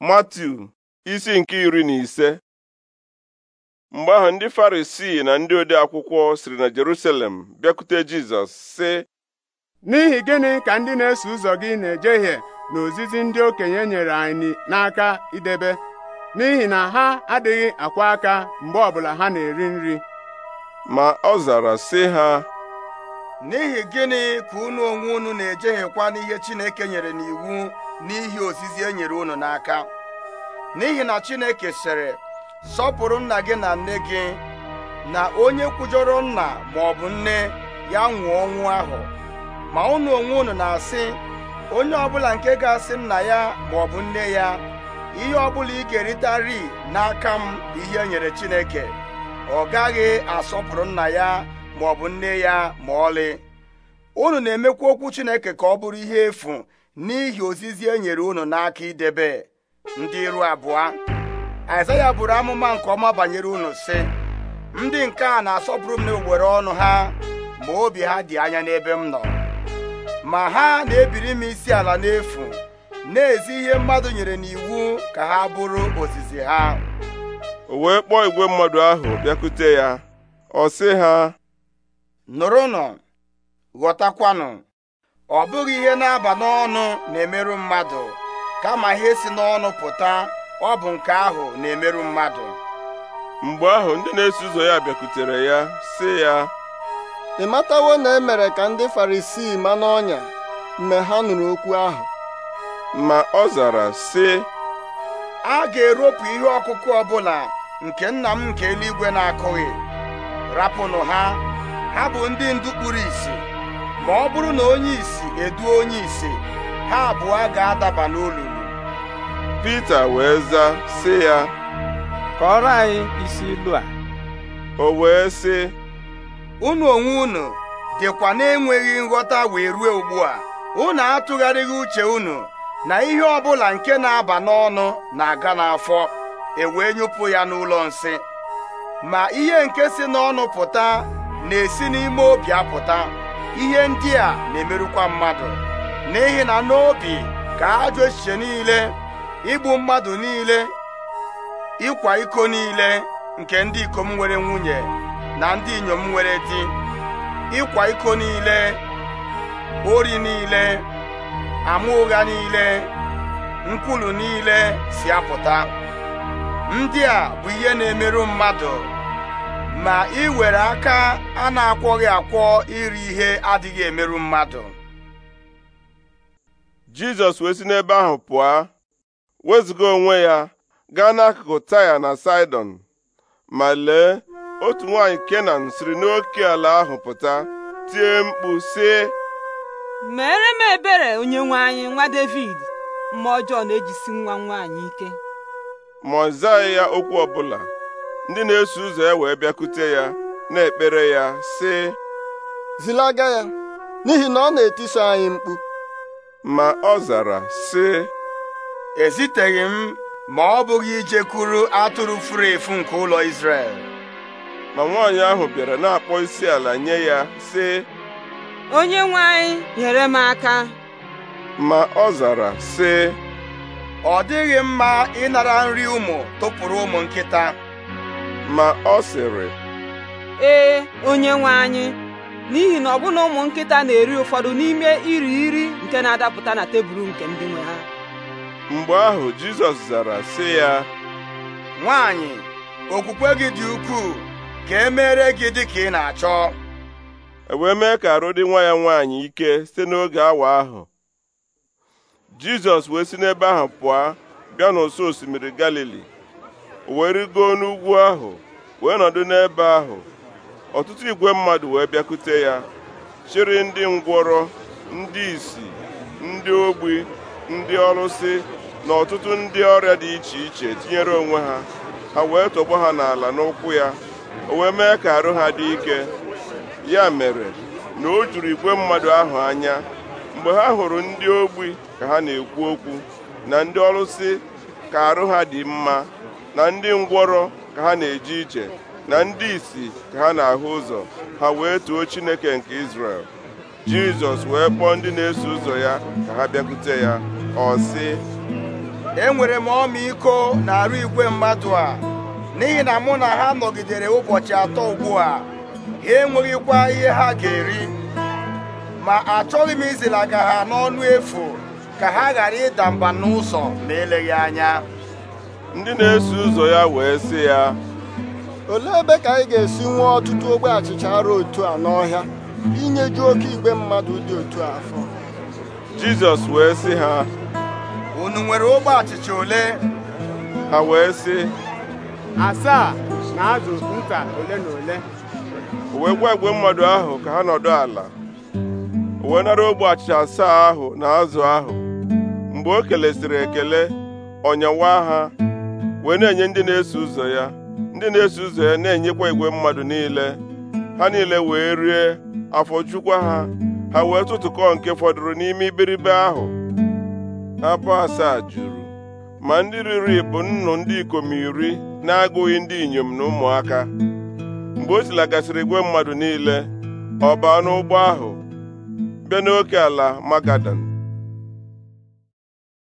Matiu isi nke iri na ise mgbe ahụ ndị Farisii na ndị ode akwụkwọ siri na Jerusalem bịakwute Jizọs sị n'ihi gịnị ka ndị na-eso ụzọ gị na-ejehie na ozizi ndị okenye nyere anyị n'aka idebe n'ihi na ha adịghị akwa aka mgbe ọbụla ha na-eri nri ma ọ zara sị ha n'ihi gịnị ka unu onwe unu na-ejeghịkwa n'ihe Chineke nyere n'iwu n'ihi ozizi e nyere unu n'aka n'ihi na Chineke sịrị sọpụrụ nna gị na nne gị na onye kwujọrọ nna ma ọ bụ nne ya nwụọ ọnwụ ahụ ma unu onwe unu na-asị onye ọbụla nke ga-asị nna ya ma ọ bụ nne ya ihe ọbụla ị ga eritari n'aka m ihe e nyere Chineke ọ gaghị asọpụrụ nna ya ma ọ bụ nne ya ma ọlị unu na-emekwa okwu Chineke ka ọ bụrụ ihe efu n'ihi ozizi e nyere unu n'aka idebe ndị iru abụọ Aịzaya bụrụ amụma nke ọma banyere unu sị ndị nke a na-asọpụrụ m n'owere ọnụ ha ma obi ha dị anya n'ebe m nọ ma ha na-ebiri m isi ala n'efu na-ezi ihe mmadụ nyere n'iwu ka ha bụrụ ozizi ha o wee kpọọ igwe mmadụ ahụ bịakute ya ọ sị ha nụrụnụ ghọtakwanụ ọ bụghị ihe na-aba n'ọnụ na-emerụ mmadụ kama ihe si n'ọnụ pụta ọ bụ nke ahụ na-emerụ mmadụ mgbe ahụ ndị na-eso ụzọ ya bịakwutere ya sị ya ị matawo na e mere ka ndị farisii ma n'ọnya mgbe ha nụrụ okwu ahụ ma ọ zara sị a ga-eropụ ihe ọkụkụ ọbụla nke nna m nke eluigwe na-akụghị rapụnụ ha ha bụ ndị ndu kpuru ìsì ma ọ bụrụ na onye isi eduo onye ise ha abụọ ga-adaba n'olulu Pita wee zaa sị ya kọrọ anyị isi ilu a o wee sị unu onwe unu dịkwa na-enweghị nghọta wee ruo ugbu a unu atụgharịghị uche unu na ihe ọbụla nke na-aba n'ọnụ na-aga n'afọ ewee nyụpụ ya n'ụlọ nsị ma ihe nke si n'ọnụ pụta na-esi n'ime obi apụta ihe ndị a na-emerụkwa mmadụ n'ihi na n'obi ka ajọ echiche niile igbu mmadụ niile ịkwa iko niile nke ndị ikom nwere nwunye na ndị inyom nwere di ịkwa iko niile ori niile ama ụgha niile nkwulu niile si apụta ndị a bụ ihe na-emerụ mmadụ ma ị were aka a na-akwọghị akwọ iri ihe adịghị emerụ mmadụ Jizọs wee si n'ebe ahụ pụọ wezụga onwe ya gaa n'akụkụ Taya na Sidon, ma lee otu nwaanyị Kenan siri n'oke ala ahụ pụta tie mkpu sị mere m ebere onyenwe anyị nwa David ma ọjọọ na-ejisi nwa nwaanyị ike ma ọ zaghị ya okwu ọbụla ndị na-eso ụzọ ya e wee bịakute ya na-ekpere ya sị zilaga ya n'ihi na ọ na etiso anyị mkpu ma ọ zara sị eziteghị m ma ọ bụghị ijekwuru atụrụ furu efu nke ụlọ Izrel ma nwaanyị ahụ bịara na-akpọ isi ala nye ya sị onye nwe anyị nyere m aka ma ọ zara sị ọ dịghị mma ịnara nri ụmụ tụpụrụ ụmụ nkịta ma ọ sịrị ee onye nwe anyị n'ihi na ọbụna ụmụ nkịta na-eri ụfọdụ n'ime iri iri nke na-adapụta na tebụl nke ndị nwe ha mgbe ahụ Jizọs zara sị ya nwaanyị okwukwe gị dị ukwuu ka e mere gị dị ka ị na-achọ e wee mee ka arụ dị nwa ya nwaanyị ike site n'oge awa ahụ Jizọs wee si n'ebe ahụ pụọ bịa n'ụsọ osimiri Galili wee rigoo n'ugwu ahụ wee nọdụ n'ebe ahụ ọtụtụ igwe mmadụ wee bịakute ya chịrị ndị ngwọrọ ndị isi ndị ogbi ndị ọlụsị na ọtụtụ ndị ọrịa dị iche iche tinyere onwe ha ha wee tọgbọ ha n'ala n'ụkwụ ya o wee mee ka arụ ha dị ike ya mere na o juru igwe mmadụ ahụ anya mgbe ha hụrụ ndị ogbi ka ha na-ekwu okwu na ndị ọlụsị ka arụ ha dị mma na ndị ngwọrọ ka ha na-eje ije na ndị isi ka ha na-ahụ ụzọ ha wee too Chineke nke Izrel Jizọs wee kpọọ ndị na-eso ụzọ ya ka ha bịakwute ya ọ sị enwere m ọmịiko na arụ igwe mmadụ a n'ihi na mụ na ha nọgidere ụbọchị atọ ugbu a ha enweghịkwa ihe ha ga-eri ma achọghị m izilaga ha n'ọnụ efu ka ha ghara ịda mba n'ụzọ ma eleghị anya ndị na-eso ụzọ ya wee sị ya olee ebe ka anyị ga-esi nwee ọtụtụ ogbe achịcha arụ otu a n'ọhịa inyeju oke igwe mmadụ dị otu afọ Jizọs wee sị ha unu nwere ogbe achịcha ole ha wee sị asaa na azụ nta ole na ole o gwa igwe mmadụ ahụ ka ha nọdụ ala o wee nara ogbe achịcha asaa ahụ na azụ ahụ mgbe o kelesịrị ekele ọnyawa ha wee na-enye ndị na-eso ụzọ ya ndị na-eso ụzọ ya na-enyekwa igwe mmadụ niile ha niile wee rie afọ jukwa ha ha wee tụtụkọ nke fọdụrụ n'ime iberibe ahụ abụ asaa juru ma ndị riri bụ nnụ ndị ikom iri na-agụghị ndị inyom na ụmụaka mgbe o silagasịrị igwe mmadụ niile ọ baa n'ụgbọ ahụ bịa n'oke ala magadan